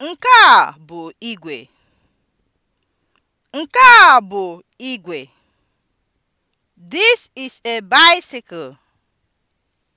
Nke a bụ igwe. Nke a bụ igwe. This is a bicycle.